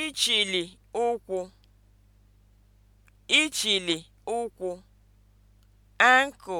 Ichili ụkwụ Ichili ụkwụ (ankle)